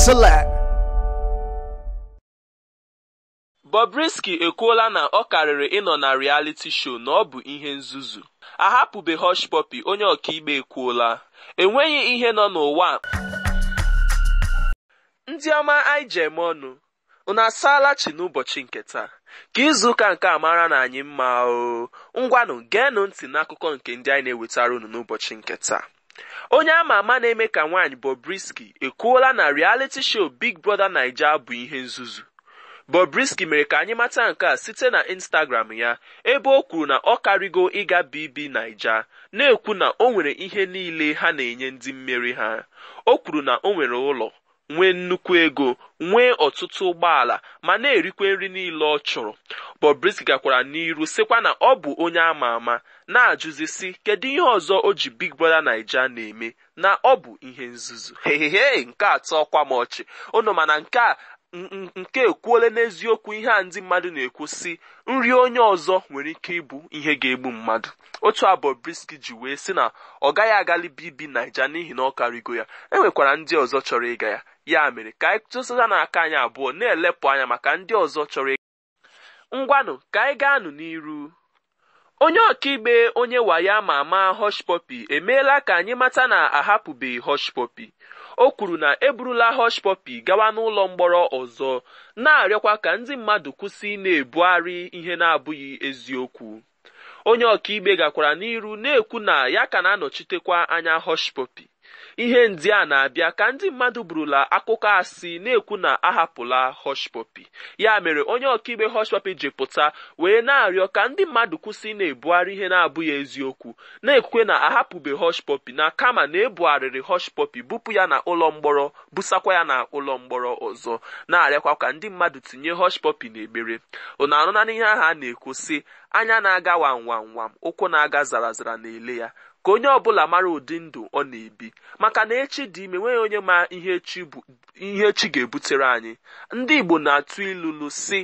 Jerusalem. Bobrisky ekwuola na ọ karịrị ịnọ na reality show na ọ bụ ihe nzuzu ahapụbe Hush Puppy onye ọkaikpe ekwuola enweghị ihe nọ n'ụwa ndị ọma anyị ji eme ọnụ unu asaala n'ụbọchị nke taa ka izuụka nke a mara na anyị mma o ngwanụ geenụ ntị n'akụkọ nke ndị anyị na-ewetara unu n'ụbọchị nke taa onye ama ama na-eme ka nwanyị Bobrisky ekwuola na reality show Big Brother Naija bụ ihe nzuzu Bobrisky mere ka anyị mata nke a site na Instagram ya ebe o kwuru na ọ karịgo ịga BB Naija na-ekwu na o nwere ihe niile ha na-enye ndị mmeri ha o kwuru na o nwere ụlọ nwee nnukwu ego nwee ọtụtụ ụgbọala ma na-erikwe nri niile ọ chọrọ Bobrisky gakwara n'iru sịkwa na ọ bụ onye ama ama na-ajụzi sị kedu ihe ọzọ o ji Big Brother Naija na-eme na ọ bụ ihe nzuzu hehehe nke atọ ọkwa m ọchị nke a nke ekwuole n'eziokwu ihe a ndị mmadụ na-ekwu si nri onye ọzọ nwere ike ịbụ ihe ga-egbu mmadụ otu abụ briski ji wee sị na ọ gaghị agali bibi Naija n'ihi na ọ karịgo ya enwekwara ndị ọzọ chọrọ ịga ya ya mere ka anyị tụsata n'aka anyị abụọ na-elepụ anya maka ndị ọzọ chọrọ ịga ngwanụ ka anyị gaanụ n'iru onye ọkaikpe onye wayo ama ama Hushpuppi emeela ka anyị mata na ahapụbeghị Hushpuppi o kwuru na eburula hoshpọpi gawa n'ụlọ mgbọrọ ọzọ na-arịọkwa ka ndị mmadụ kwụsị na-ebugharị ihe na-abụghị eziokwu onye ọka ọkaikpe gakwara n'iru na-ekwu na ya ka na-anọchitekwa anya hoshpọpi ihe ndị a na-abịa ka ndị mmadụ burula akụkọ asị na-ekwu na ahapụla Hushpuppi ya mere onye ọkaikpe Hushpuppi ji pụta wee na-arịọ ka ndị mmadụ kwụsị na-ebugharị ihe na-abụghị eziokwu na-ekwe na ahapụbe Hushpuppi na kama na ebugharịrị Hushpuppi bupụ ya na ụlọ mgbọrọ busakwa ya na ụlọ mgbọrọ ọzọ na-arịakwa ka ndị mmadụ tinye Hushpuppi n'ekpere ụna anụna n'ihe ahụ a na-ekwu sị anya na-aga wam wam wam ụkwụ na-aga zara zara na ele ya ka onye ọbụla mara ụdị ndụ ọ na-ebi maka na echi dị ime nweghị onye ma ihe echi ihe echi ga-ebutere anyị ndị Igbo na-atụ ilulu si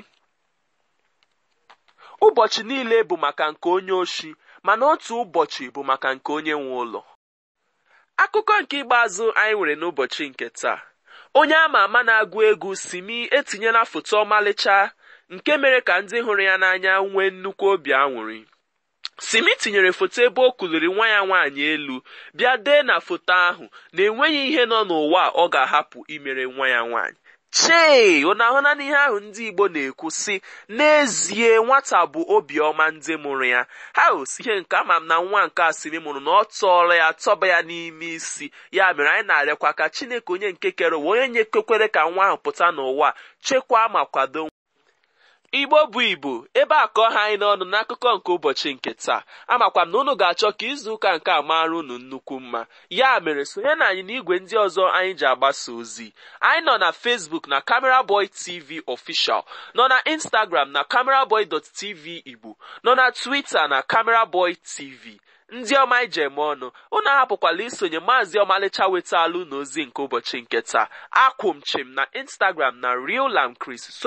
ụbọchị niile bụ maka nke onye oshi mana otu ụbọchị bụ maka nke onye nwe ụlọ akụkọ nke ikpeazụ anyị nwere n'ụbọchị nke taa onye ama ama na-agụ egwu si Simi etinyela foto ọmalịcha nke mere ka ndị hụrụ ya n'anya nwee nnukwu obi aṅụrị simi tinyere foto ebe o kuliri nwa ya nwaanyị elu bịa dee na foto ahụ na enweghị ihe nọ n'ụwa ọ ga-ahapụ imere nwa ya nwaanyị chee ọ na-ahụna n'ihe ahụ ndị Igbo na-ekwu sị n'ezie nwata bụ obiọma ndị mụrụ ya ha osi ihe nke ama m na nwa nke asịrị mụrụ na ọ tọọrọ ya tọba ya n'ime isi ya mere anyị na-arịakwa ka Chineke onye nke kere onye nye ka nwa ahụ pụta n'ụwa chekwaa ma kwado igbo bụ ibu ebe a kọọ ha anyị n'ọnụ n'akụkọ nke ụbọchị nke taa amakwam na unu ga-achọ ka izu ụka nke a mara unu nnukwu mma ya mere sonye na anyị n'igwe ndị ọzọ anyị ji agbasa ozi anyị nọ na Facebook na Camera Boy TV Official nọ na Instagram na tv igbo nọ na Twitter na Camera Boy TV ndị ọma ije eme ọnụ unu ahapụkwala isonye maazị ọmalịcha wetaalụ n'ozi nke ụbọchị nke taa akwụ chim na Instagram na Real Lamb Chris